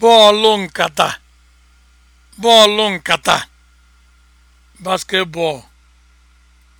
bọọlụ nkata bọọlụ nkata basketball